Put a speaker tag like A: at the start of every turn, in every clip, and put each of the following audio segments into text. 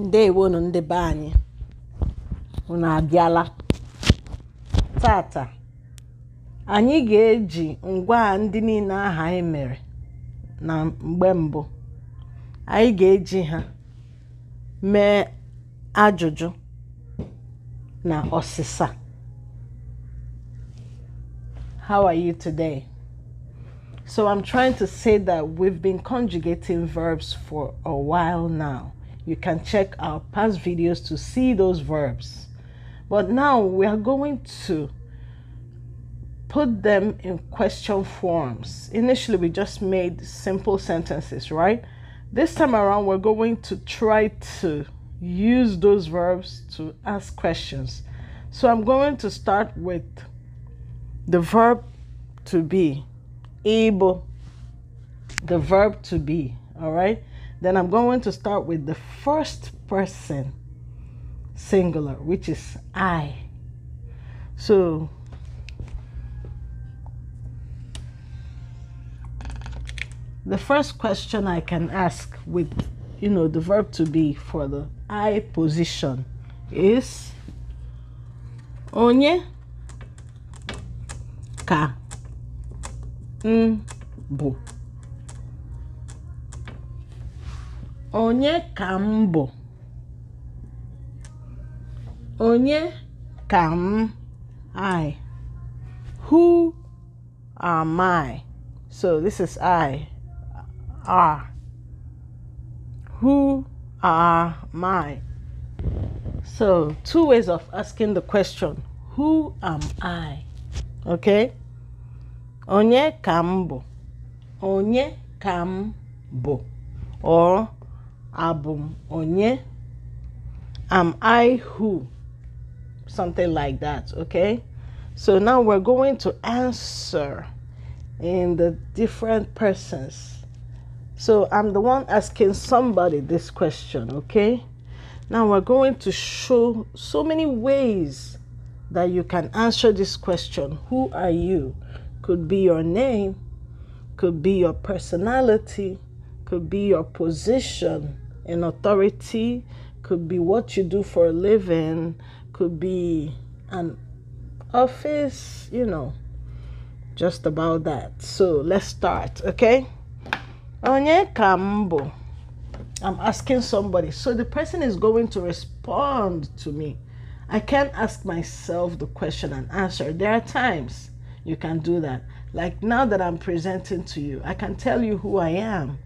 A: ndewonu ndị be anyị unu abịala tata anyị ga-eji ngwa ndị niile aha anyị mere na mgbe mbụ anyị ga-eji ha mee ajụjụ na ọsịsa how are you today So I'm trying to say that we've been conjugating verbs for a while now. You can check our past videos to see those verbs. But now we are going to put them in question forms. Initially, we just made simple sentences, right? This time around, we're going to try to use those verbs to ask questions. So I'm going to start with the verb to be, able, the verb to be, all right? Then I'm going to start with the first person singular, which is I. So the first question I can ask with you know the verb to be for the I position is onye ka m onye ka m bụ onye ka m I who am I so this is I are who are my so two ways of asking the question who am I okay onye ka m bụ onye ka m bụ or Album onye am i who something like that okay so now we're going to answer in the different persons so i'm the one asking somebody this question okay now we're going to show so many ways that you can answer this question who are you could be your name could be your personality could be your position an authority, could be what you do for a living, could be an office, you know, just about that. So let's start, okay? Onye kambo. I'm asking somebody. So the person is going to respond to me. I can't ask myself the question and answer. There are times you can do that. Like now that I'm presenting to you, I can tell you who I am.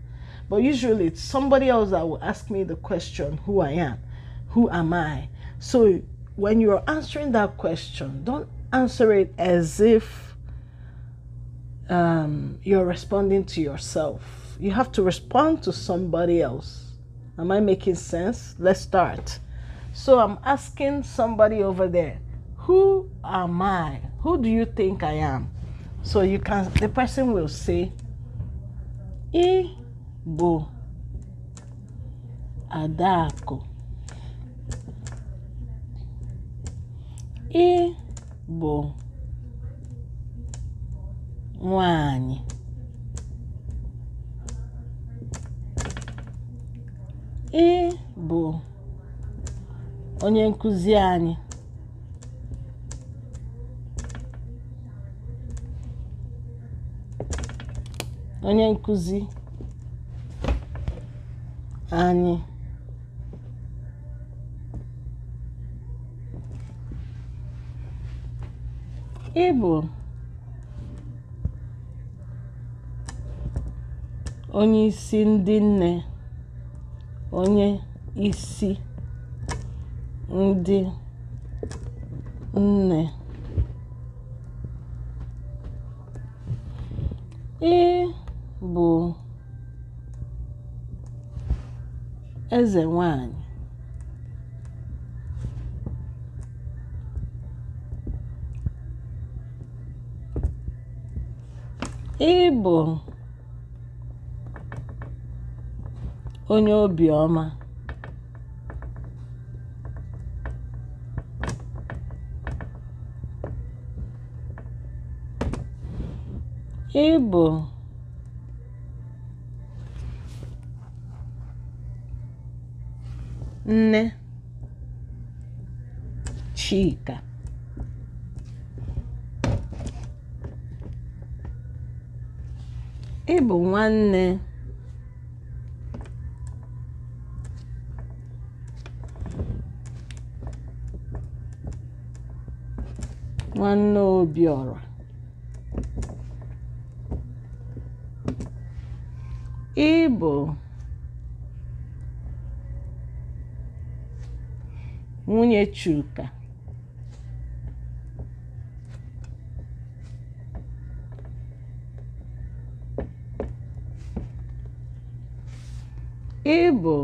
A: But usually it's somebody else that will ask me the question, who I am, who am I? So when you're answering that question, don't answer it as if um, you're responding to yourself. You have to respond to somebody else. Am I making sense? Let's start. So I'm asking somebody over there, who am I? Who do you think I am? So you can, the person will say, "Eh." bụ adaakụ Ị bụ nwaanyị. Ị bụ onye nkuzi anyị. Onye nkuzi anyị ịbụ onye isi ndị nne onye isi ndị nne ị bụ eze nwanyị ịbụ onye obiọma ịbụ Nne Chika ị bụ nwanne nwanne obiọra ị bụ nwunye Chuka ịbụ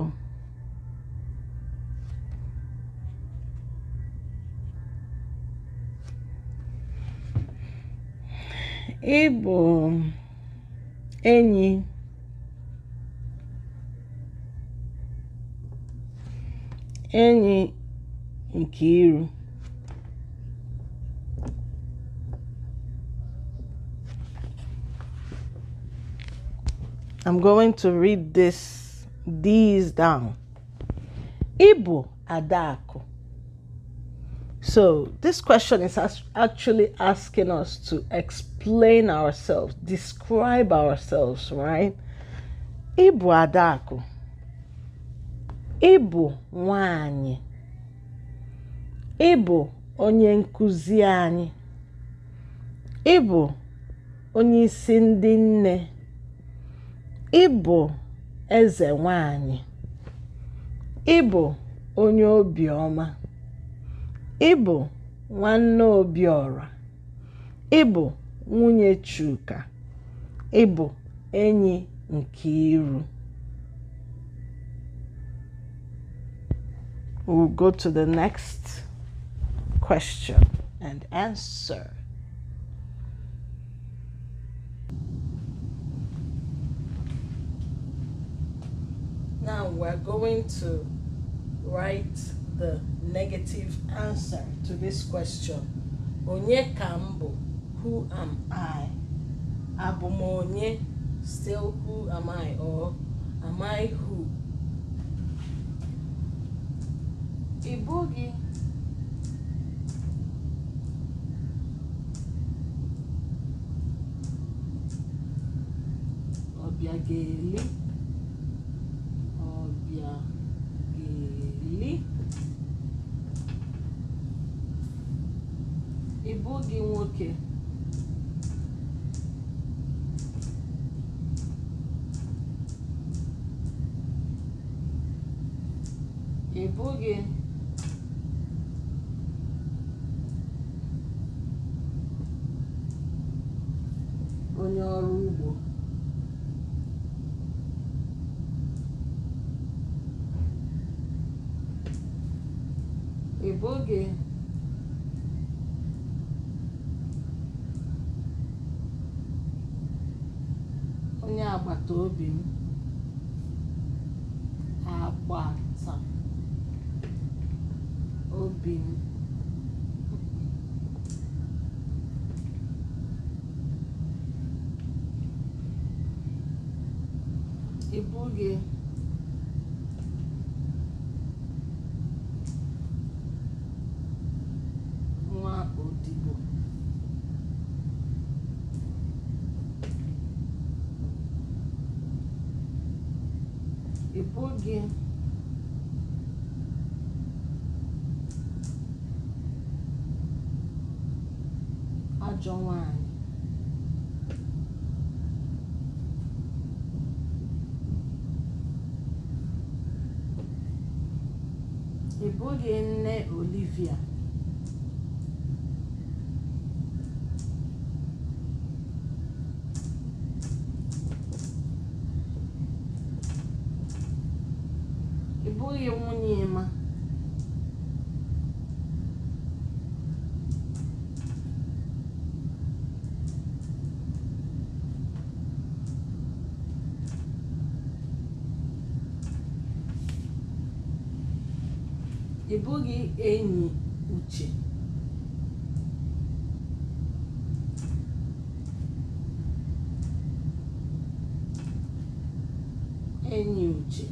A: ịbụ enyi enyi Nkiru. Um I'm going to read this these down. Ibu Adako. So this question is actually asking us to explain ourselves, describe ourselves, right? Ibu Adako. Ibu Wanyi. Ị bụ onye nkuzi anyị. Ị bụ onyeisi ndị nne. Ị bụ eze nwanyị, Ị bụ onye obiọma. Ị bụ nwanne Obiọra. Ị bụ nwunye Chuka. Ị bụ enyi Nkiru. We'll go to the question and answer. Now we're going to write the negative answer to this question. Onye kambo, who am I? Abomonye, still who am I or am I who? Ibugi gèlè ọ̀yà gèlè ị bụ gị nwoke ị bụ gị onye agbata obi m agbata obi m ibu gị gị ajọ nwaanyị ị bụghị nne Olivia bụghị enyi uche enyi uche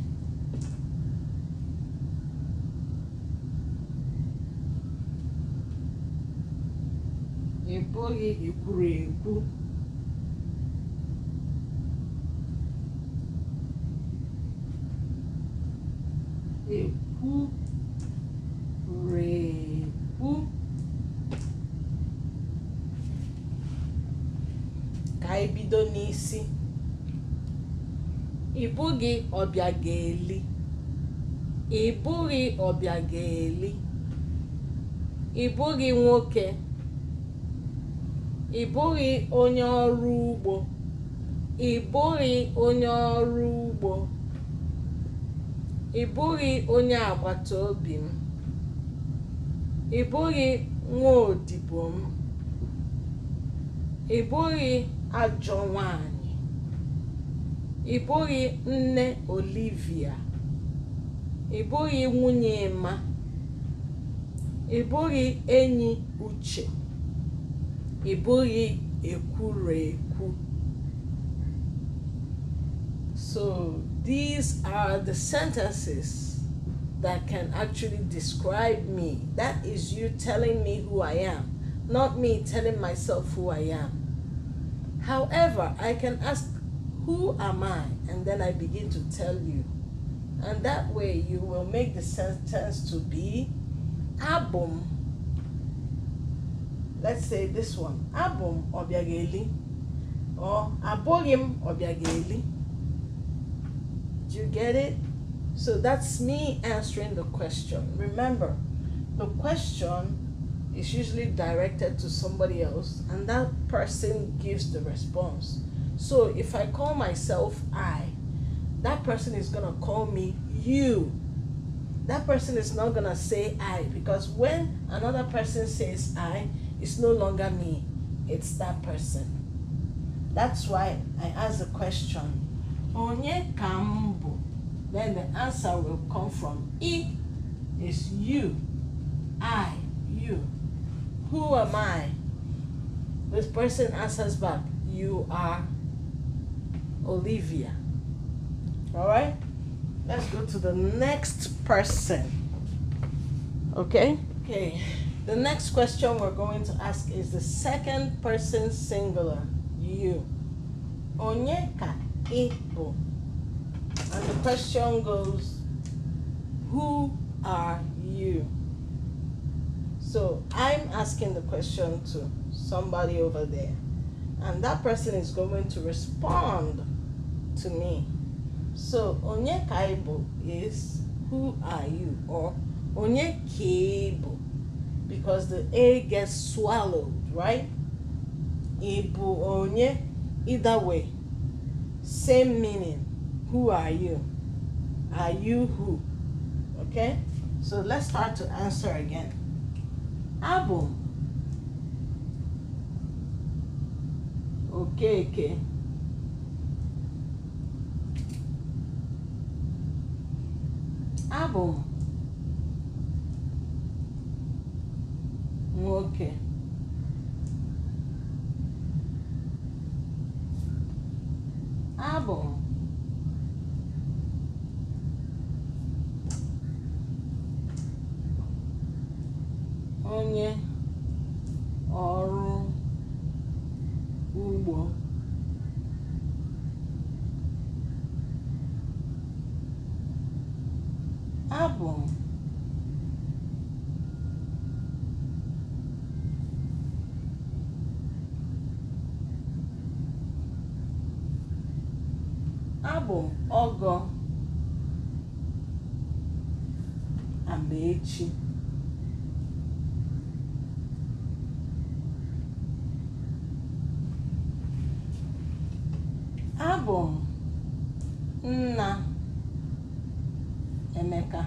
A: ị bụghị ekwuru ekwu ekwu bụghị ga-eli, ị bụghị ga-eli, ị bụghị nwoke ị bụghị onye ọrụ ugbo ị bụghị onye ọrụ ugbo ị bụghị onye agbata obi m ị bụghị nwaodibo m ị bụghị ajọ nwanyị ị bụghị nne Olivia ị bụghị nwunye Emma ị bụghị enyi Uche ị bụghị ekwurekwu so these are the sentences that can actually describe me that is you telling me who I am not me telling myself who I am however I can ask who am I? And then I begin to tell you. And that way you will make the sentence to be Abum. Let's say this one Abum Obiageli or Abogim Obiageli. Do you get it? So that's me answering the question. Remember, the question is usually directed to somebody else, and that person gives the response. So if I call myself I, that person is going to call me you. That person is not going to say I because when another person says I, it's no longer me, it's that person. That's why I ask the question, Onye kambo? Then the answer will come from I is you, I, you. Who am I? This person answers back, You are Olivia. All right? Let's go to the next person. Okay? Okay. The next question we're going to ask is the second person singular, you. Onyeka Ibo. And the question goes, who are you? So I'm asking the question to somebody over there, and that person is going to respond to me. So onye kaibo is who are you or onye kibo, because the A gets swallowed, right? Ibo onye either way. Same meaning. Who are you? Are you who? Okay? So let's start to answer again. Abụ Okay, okay. Ah, bom. Ok. Ah, bom. Abụ m ọgọ Amaechi. Abụ m nna Emeka.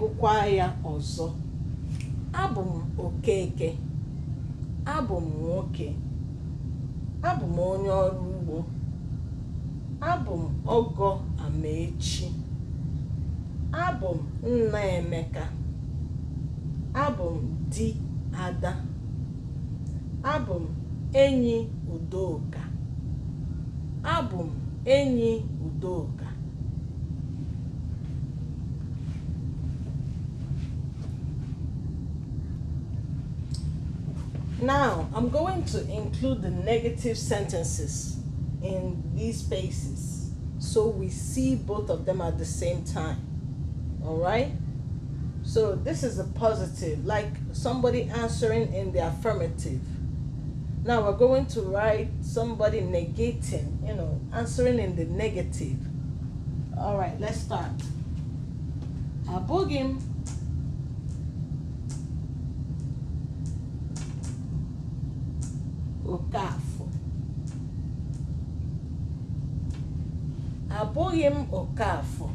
A: gụkwa ya ọzọ abụ m okeke abụ m nwoke abụ m onye ọrụ ugbo abụ m ọgọ amaechi abụ m nna emeka abụ m di ada abụ m enyi udoka abụ m enyi udoka Now, I'm going to include the negative sentences in these spaces so we see both of them at the same time. All right? So this is a positive, like somebody answering in the affirmative. Now we're going to write somebody negating, you know, answering in the negative. All right, let's start. Abogim kafo apogem o oh, kafo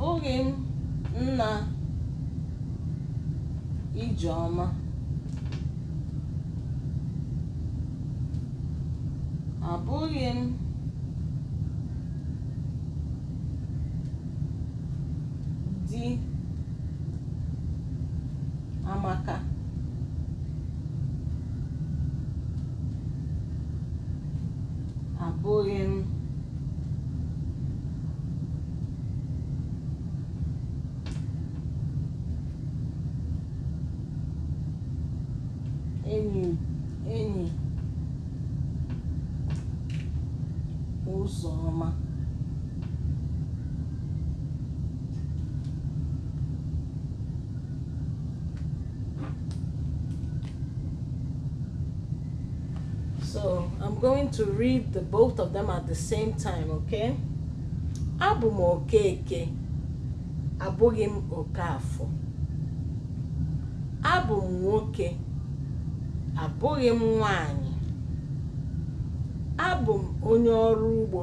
A: abụghị m nna ijeọma abụghị m to read the both of them at the same time, okay? Abụ m Okeke, abụghị m Okafọ. Abụ m nwoke, abụghị m nwanyị. Abụ m onye ọrụ ugbo,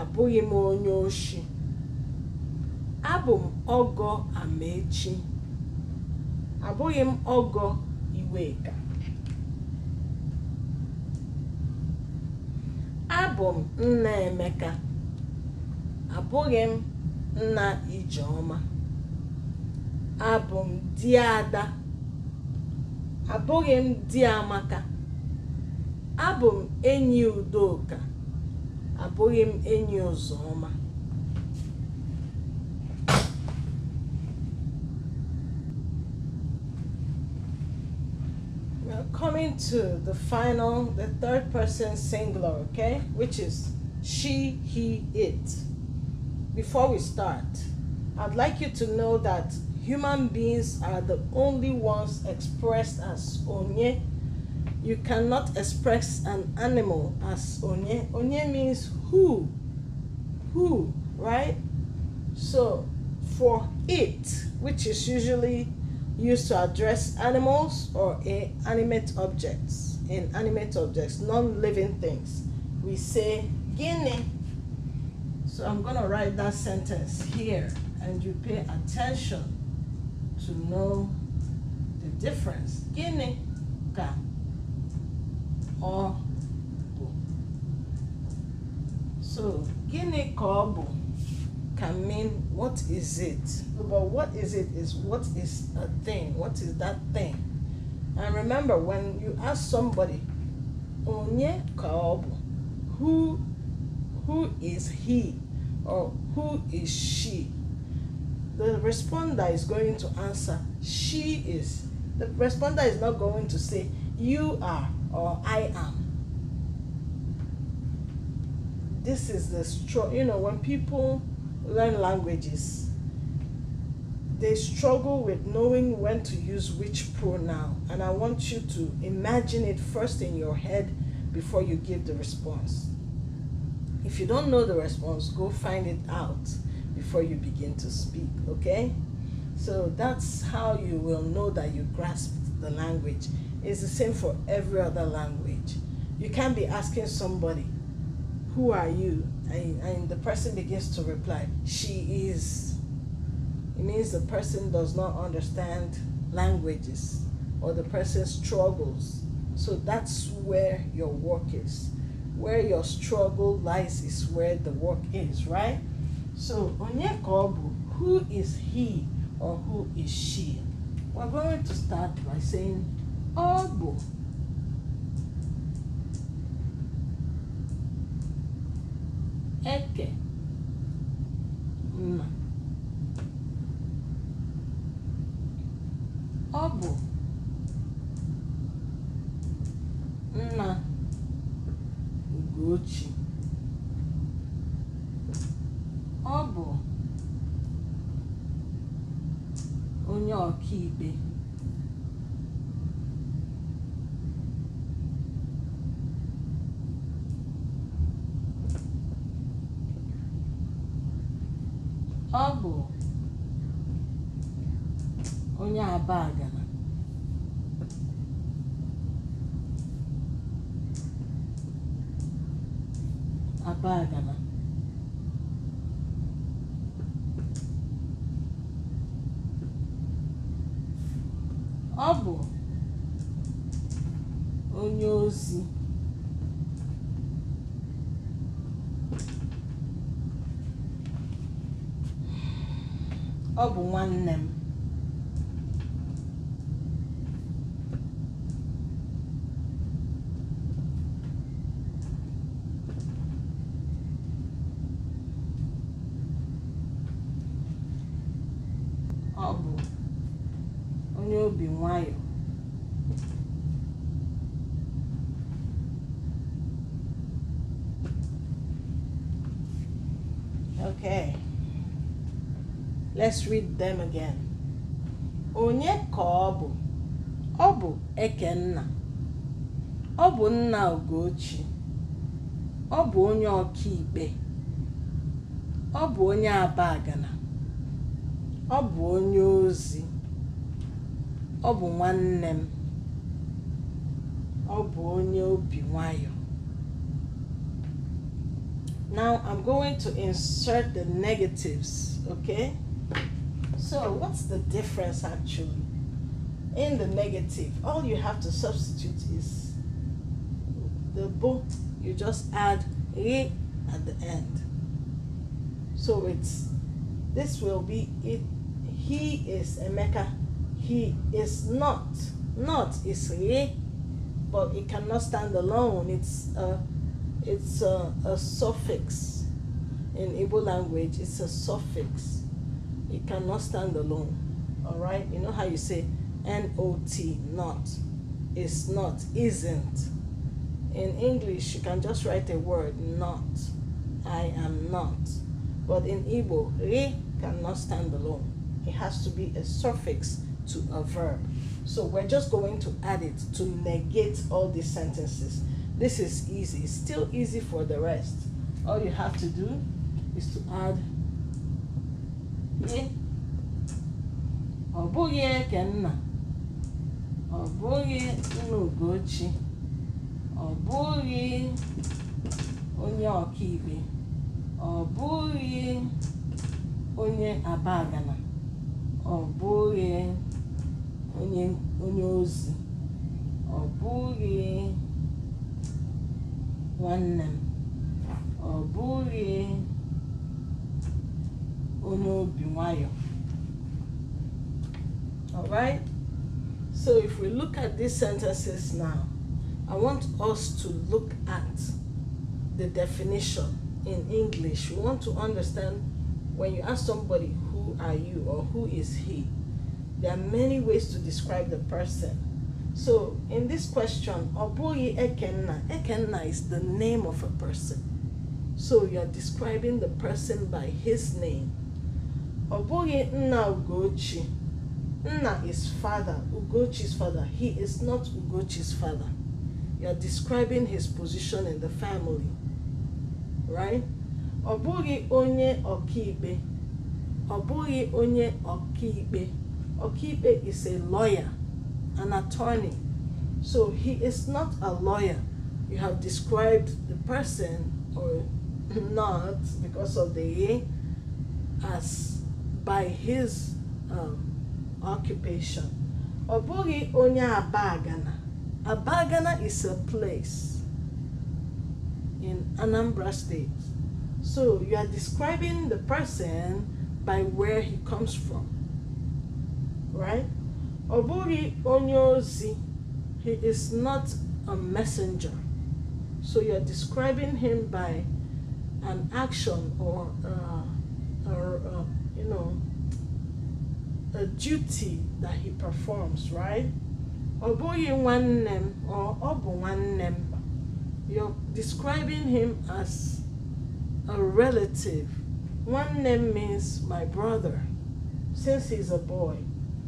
A: abụghị m onye oshi. Abụ m Ọgọ Amaechi, abụghị m Ọgọ Iweka. Abụ m nna Emeka, abụghị m nna Ijeoma, Abụ m di Ada, abụghị m di Amaka. Abụ m enyi Udoka, abụghị m enyi Ụzọma. coming to the final, the third person singular, okay? Which is she, he, it. Before we start, I'd like you to know that human beings are the only ones expressed as onye. You cannot express an animal as onye. Onye means who, who, right? So for it, which is usually used to address animals or inanimate objects. Inanimate objects, non living things. We say Guinea. So I'm going to write that sentence here and you pay attention to know the difference. Guinea ka or So, Guinea ka can mean what is it but what is it is what is a thing what is that thing and remember when you ask somebody onye kaobu who who is he or who is she the responder is going to answer she is the responder is not going to say you are or i am this is the strong you know when people learn languages, they struggle with knowing when to use which pronoun. And I want you to imagine it first in your head before you give the response. If you don't know the response, go find it out before you begin to speak, okay? So that's how you will know that you grasped the language. It's the same for every other language. You can't be asking somebody, who are you? And, and the person begins to reply, she is. It means the person does not understand languages or the person struggles. So that's where your work is. Where your struggle lies is where the work is, right? So, Onyekobu, who is he or who is she? We're going to start by saying Obu. é que uma obo ọ nwanne onye obi nwayọ okay Let's read them again. Onye ka ọ bụ? Ọ bụ Ekenna. Ọ bụ nna Ogochi. Ọ bụ onye ọkaikpe. Ọ bụ onye Abagana. Ọ bụ onye ozi. Ọ bụ nwanne m. Ọ bụ onye obi nwayọ. Now I'm going to insert the negatives, okay? So what's the difference actually? In the negative, all you have to substitute is the bo. You just add e at the end. So it's this will be it. He is Emeka. He is not. Not is re, but it cannot stand alone. It's a it's a, a suffix in Igbo language. It's a suffix. It cannot stand alone. All right? You know how you say N O T, not. It's not, isn't. In English, you can just write a word, not. I am not. But in Igbo, re cannot stand alone. It has to be a suffix to a verb. So we're just going to add it to negate all these sentences. This is easy. It's still easy for the rest. All you have to do is to add ị ọ bụghị nna, ọ bụghị nna Ugochi ọ bụghị onye ọkaikpe ọ bụghị onye abagana ọ bụghị onye ozi ọ bụghị nwanne m ọ bụghị all right so if we look at these sentences now i want us to look at the definition in english we want to understand when you ask somebody who are you or who is he there are many ways to describe the person so in this question oboyi ekenna ekenna is the name of a person so you are describing the person by his name Obuji na nna ugochi nna is father ugochi's father he is not ugochi's father you're describing his position in the family right ọ onye Okibe, ọ onye Okibe. Okibe is a lawyer an attorney so he is not a lawyer you have described the person or not because of the as by his um, occupation ọ onya abagana abagana is a place in anambra state so you are describing the person by where he comes from right ọ bụghị he is not a messenger so you are describing him by an action or uh, or a know, a duty that he performs, right? Oboye one name or one You're describing him as a relative. One name means my brother. Since he's a boy,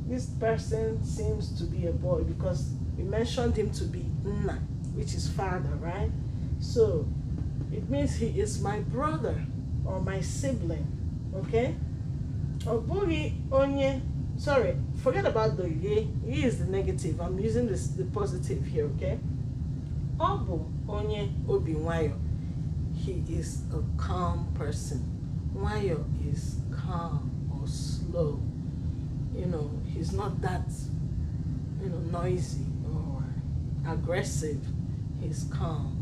A: this person seems to be a boy because we mentioned him to be Nna, which is father, right? So it means he is my brother or my sibling, okay? ọ onye sorry forget about the ye ye is the negative i'm using this, the positive here okay ọ onye obi he is a calm person nwayọ is calm or slow you know he's not that you know noisy or aggressive he's calm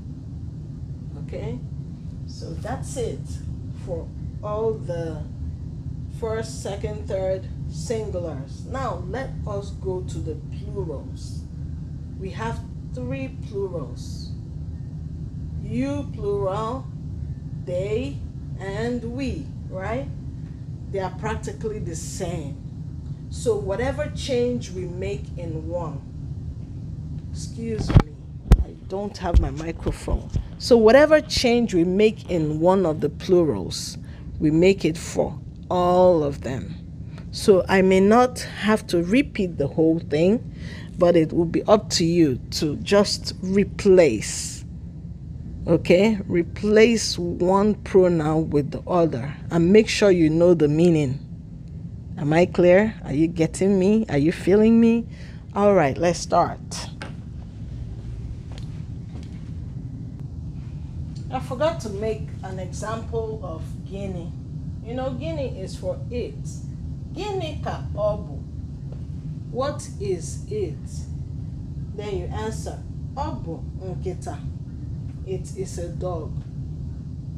A: okay so that's it for all the first, second, third singulars. Now let us go to the plurals. We have three plurals. You plural, they, and we, right? They are practically the same. So whatever change we make in one, excuse me, I don't have my microphone. So whatever change we make in one of the plurals, we make it for all of them. So I may not have to repeat the whole thing, but it will be up to you to just replace. Okay? Replace one pronoun with the other and make sure you know the meaning. Am I clear? Are you getting me? Are you feeling me? All right, let's start. I forgot to make an example of Guinea. You know, Guinea is for it. Guinea ka obu. What is it? Then you answer, obu nkita. It is a dog.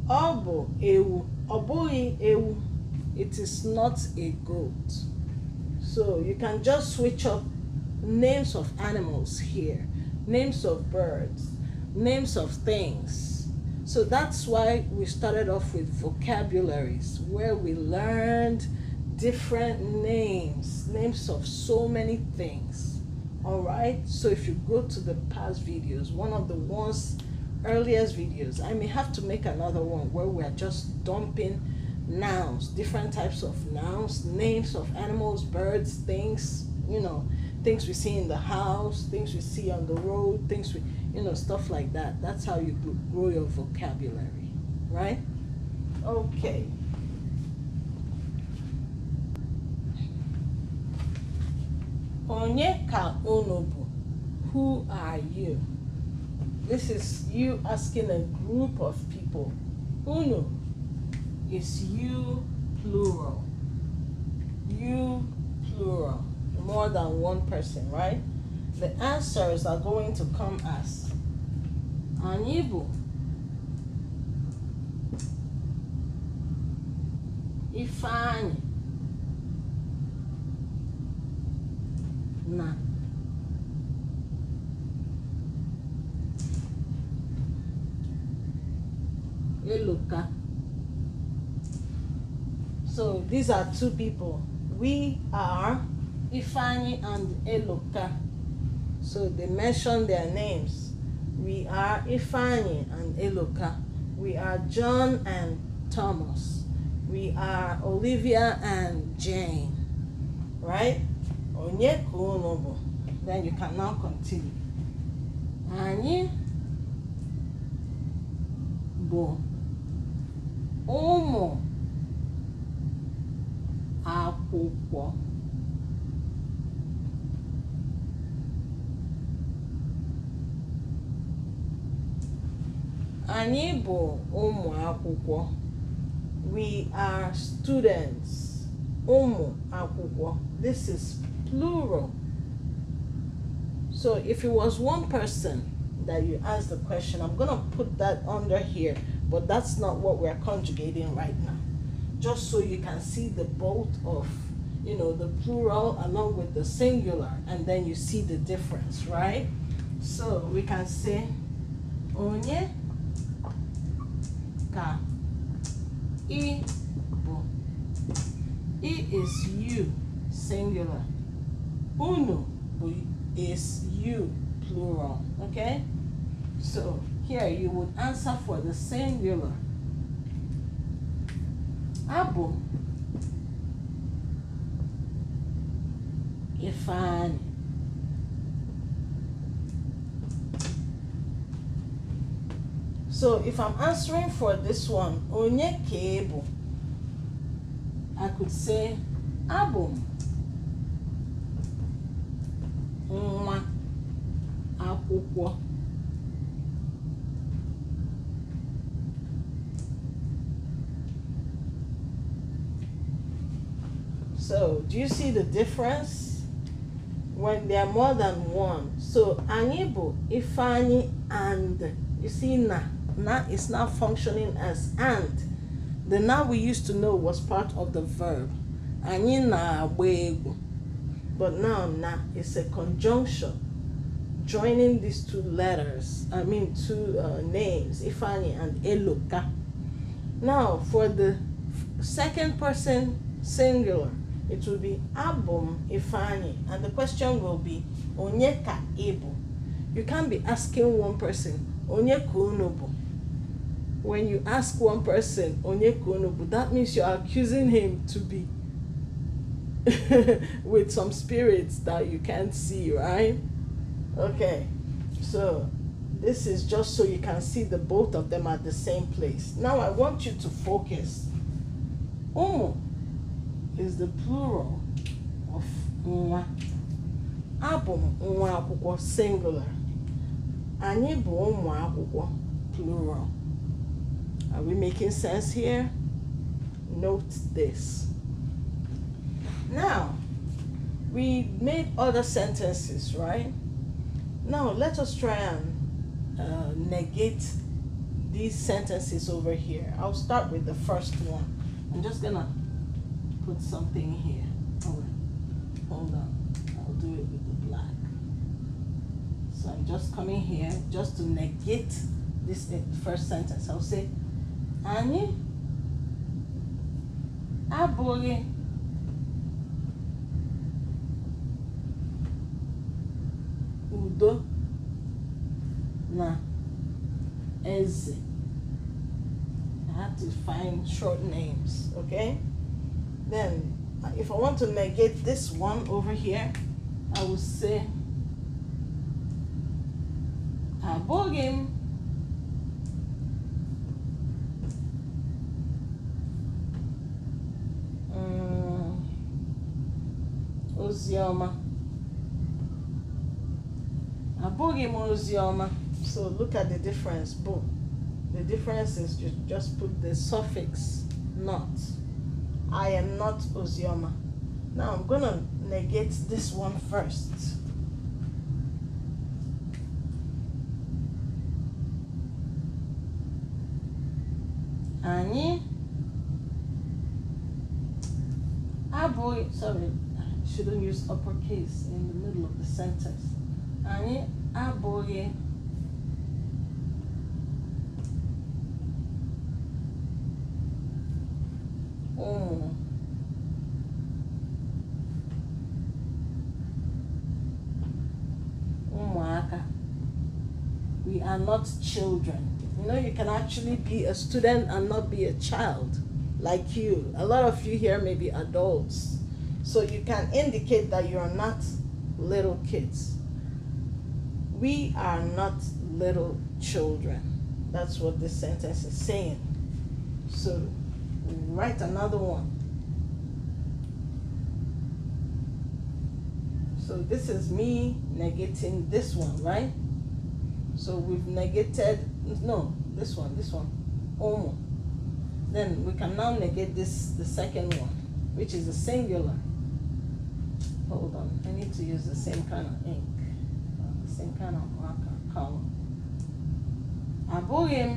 A: Obu ewu. Obui ewu. It is not a goat. So you can just switch up names of animals here, names of birds, names of things. So that's why we started off with vocabularies, where we learned different names, names of so many things. All right, so if you go to the past videos, one of the ones, earliest videos, I may have to make another one where we're just dumping nouns, different types of nouns, names of animals, birds, things, you know, things we see in the house, things we see on the road, things we you know, stuff like that. That's how you grow your vocabulary, right? Okay. Onye ka Who are you? This is you asking a group of people. Unu is you plural. You plural. More than one person, right? The answers are going to come as on Ifany, Ifeanyi na Eloka. So these are two people. We are Ifeanyi and Eloka. So they mention their names. We are Ifani and Eloka. We are John and Thomas. We are Olivia and Jane. Right? Onye Then you can now continue. Anyị bụ ụmụ akwụkwọ. Anyị bụ ụmụ akwụkwọ. We are students. Ụmụ akwụkwọ. This is plural. So if it was one person that you asked the question, I'm going to put that under here, but that's not what we're conjugating right now. Just so you can see the both of, you know, the plural along with the singular, and then you see the difference, right? So we can say, onye ka i bụ it is you singular Uno is you plural okay so here you would answer for the singular abụ ifeanyi So if I'm answering for this one, onye kebo, I could say abu nwa akwụkwọ. So, do you see the difference? When there are more than one. So, anyị ifani and, you see na now it's now functioning as and. The now we used to know was part of the verb. Anyị But now na is a conjunction joining these two letters, I mean two uh, names, Ifani and Eloka. Now for the second person singular, it will be Abum Ifani, and the question will be Onyeka Ibu. You can't be asking one person, Onyeka Unobu when you ask one person onyekonobu that means you're accusing him to be with some spirits that you can't see right okay so this is just so you can see the both of them at the same place now i want you to focus umu is the plural of nwa abụ m akwụkwọ singular anyị bụ ụmụ akwụkwọ plural are we making sense here? Note this. Now, we made other sentences, right? Now, let us try and uh, negate these sentences over here. I'll start with the first one. I'm just gonna put something here. hold on. I'll do it with the black. So I'm just coming here just to negate this eh, first sentence. I'll say, anyị abụghị udo na eze I have to find short names, okay? Then, if I want to negate this one over here, I will say, Abogim. Ozioma, abụghị m Ozioma. so look at the difference bụ the difference is you just put the suffix not i am not ozioma now i'm gonna negate this one first anyị abụghị sorry shouldn't use uppercase in the middle of the sentence. Anyị abụghị ụmụ We are not children. You know, you can actually be a student and not be a child like you. A lot of you here may be adults. So you can indicate that you are not little kids. We are not little children. That's what this sentence is saying. So write another one. So this is me negating this one, right? So we've negated, no, this one, this one, Oh, Then we can now negate this, the second one, which is a singular. Hold on, I need to use the same kind of ink, the same kind of marker color. Abụghị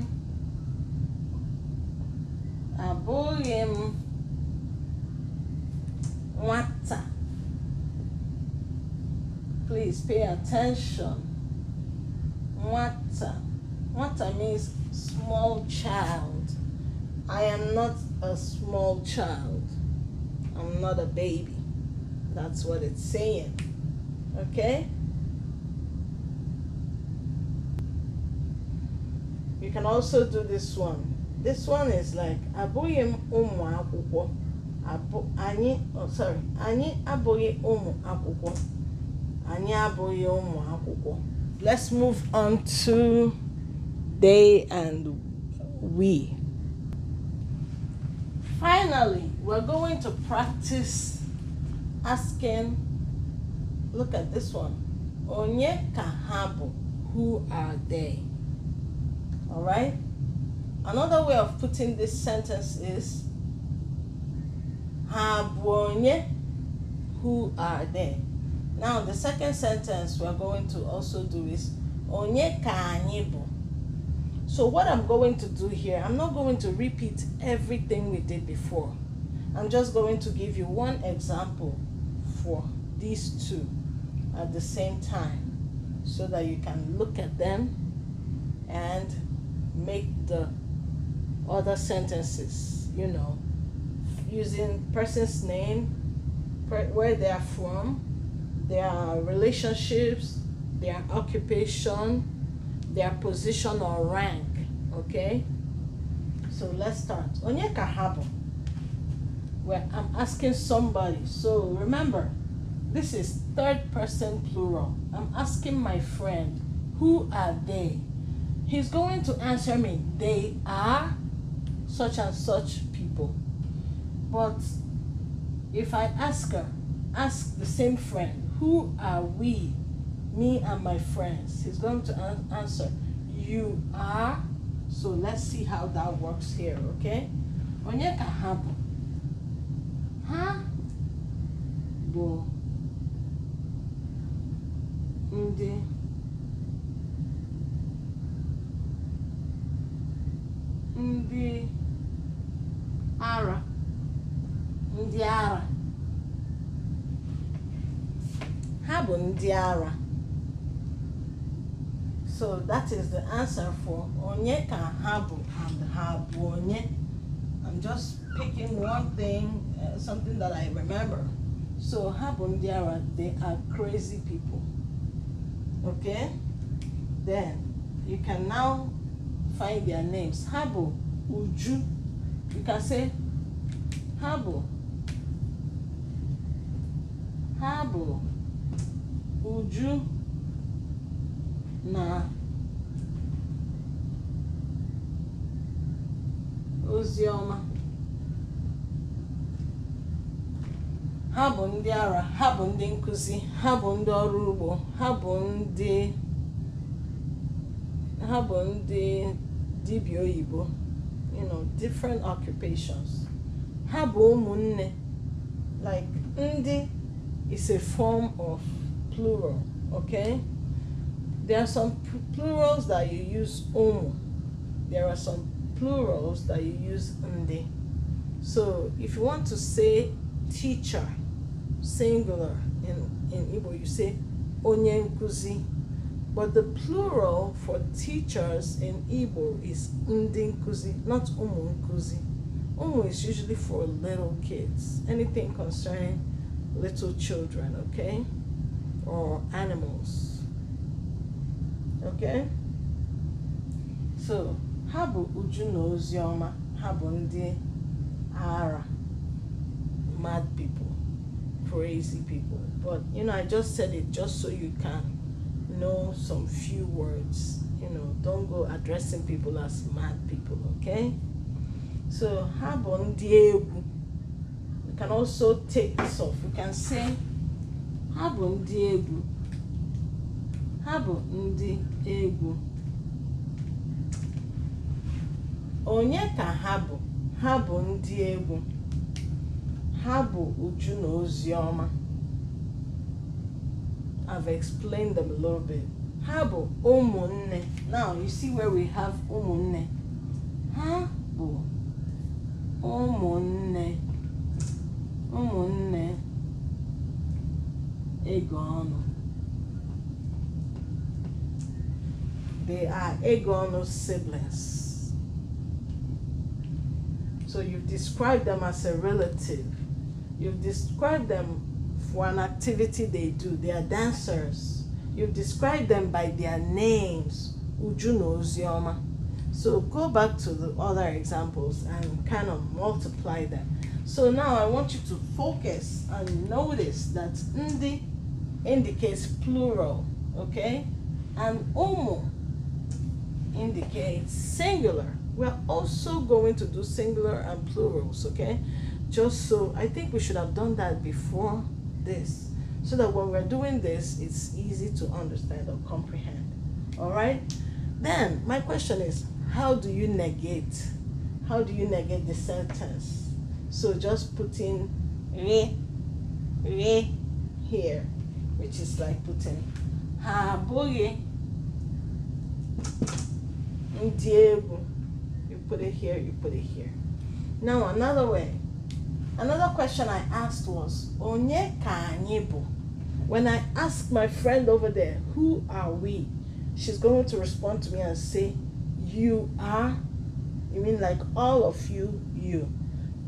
A: m, water. Please pay attention. Water, water means small child. I am not a small child. I'm not a baby. That's what it's saying. Okay? You can also do this one. This one is like abụghị m ụmụ akwụkwọ. Abụ anyị oh sorry, anyị abụghị ụmụ akwụkwọ. Anyị abụghị ụmụ akwụkwọ. Let's move on to they and we. Finally, we're going to practice asking, look at this one. Onye kahabu, who are they? All right? Another way of putting this sentence is, habonye, who are they? Now, the second sentence we're going to also do is, onye ka so what I'm going to do here, I'm not going to repeat everything we did before. I'm just going to give you one example for these two at the same time so that you can look at them and make the other sentences, you know, using person's name, where they are from, their relationships, their occupation, their position or rank, okay? So let's start. Onyeka Habo where I'm asking somebody. So remember, this is third person plural. I'm asking my friend, who are they? He's going to answer me, they are such and such people. But if I ask her, ask the same friend, who are we, me and my friends? He's going to an answer, you are. So let's see how that works here, okay? Onyeka Habu. Huh? Bo. ndị ndị ara ndị ara ha bụ ndị ara so that is the answer for onye ka ha bụ and ha bụ onye i'm just picking one thing uh, something that I remember. So Habundiara, they are crazy people. Okay? Then you can now find their names. Habo Uju. You can say Habo, Habo Uju. Na. Ozioma. ha bụ ndị ara ha bụ ndị nkụzi ha bụ ndị ọrụ ugbo ha bụ ndị ha bụ ndị dibịa oyibo you know different occupations ha bụ ụmụnne like ndị is a form of plural okay there are some plurals that you use ụmụ there are some plurals that you use ndị so if you want to say teacher singular in, in Igbo, you say onye nkuzi. But the plural for teachers in Igbo is ndi nkuzi, not umu nkuzi. Umu is usually for little kids, anything concerning little children, okay? Or animals, okay? So, how bụ uju na oziọma, ha ndị ara, mad people crazy people. But you know, I just said it just so you can know some few words. You know, don't go addressing people as mad people, okay? So habon diegu. We can also take this off. We can say habon diegu. Habon ndi Onye ka habo? Habon diegu ha bụ Uju na Ozioma I've explained them a little bit ha bụ ụmụnne now you see where we have ụmụnne ha bụ ụmụnne ụmụnne they are Egono siblings. So you've described them as a relative. You've described them for an activity they do. They are dancers. You've described them by their names. Uju knows Yoma. So go back to the other examples and kind of multiply them. So now I want you to focus and notice that ndi indicates plural, okay? And umo indicates singular. We're also going to do singular and plurals, okay? just so I think we should have done that before this so that when we're doing this it's easy to understand or comprehend all right then my question is how do you negate how do you negate the sentence so just putting re re here which is like putting ha boogie you put it here you put it here now another way Another question I asked was, Onye ka anyị bụ? When I ask my friend over there, who are we? She's going to respond to me and say, You are. You mean like all of you, you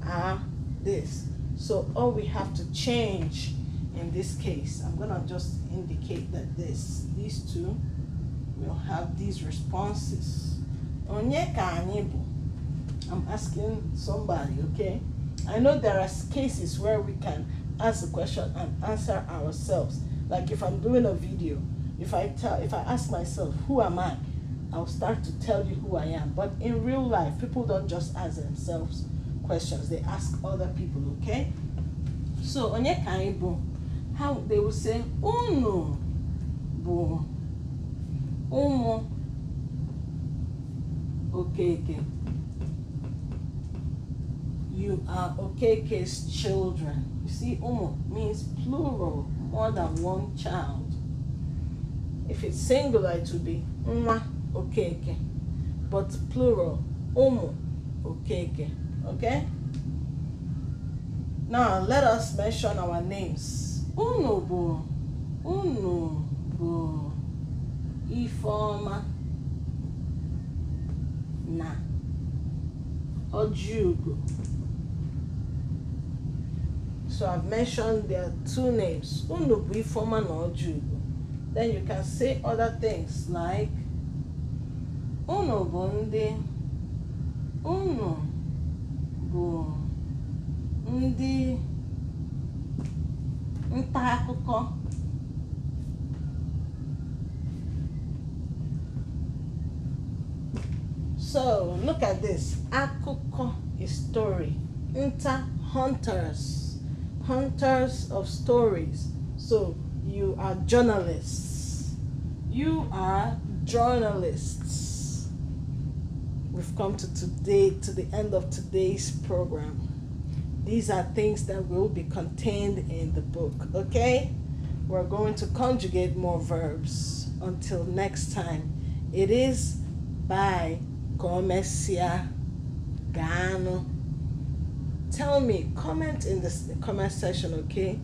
A: are this. So all we have to change in this case, I'm gonna just indicate that this, these two will have these responses. Onye ka anyị bụ? I'm asking somebody, okay? I know there are cases where we can ask a question and answer ourselves. Like if I'm doing a video, if I tell, if I ask myself, who am I? I'll start to tell you who I am. But in real life, people don't just ask themselves questions; they ask other people. Okay. So onye ka anyị How they will say unu bụ ụmụ okeke. Okay, okay you are Okeke's children. You see, umu means plural, more than one child. If it's singular, it would be mwa okeke, but plural, umu okeke. Okay? Now, let us mention our names. Unu bu, Ifoma, na, Ojugo so I've mentioned their two names, Then you can say other things like "Uno bụ uno unu bụ ndị akụkọ so look at this akụkọ is story nta hunters hunters of stories. So you are journalists. You are journalists. We've come to today to the end of today's program. These are things that will be contained in the book, okay? We're going to conjugate more verbs. Until next time, it is by Gomesia Gano tell me, comment in the comment section, okay?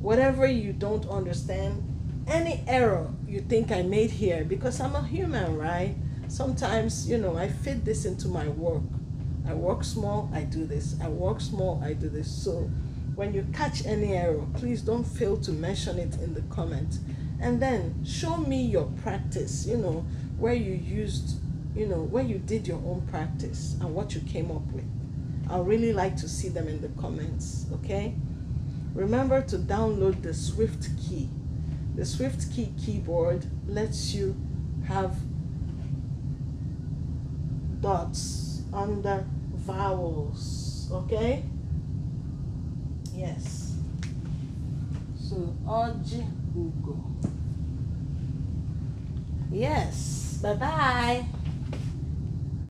A: Whatever you don't understand, any error you think I made here, because I'm a human, right? Sometimes, you know, I fit this into my work. I work small, I do this. I work small, I do this. So when you catch any error, please don't fail to mention it in the comment. And then show me your practice, you know, where you used, you know, where you did your own practice and what you came up with. I really like to see them in the comments, okay? Remember to download the Swift Key. The Swift Key keyboard lets you have dots under vowels, okay? Yes. So, Oji Ugo. Yes. Bye-bye.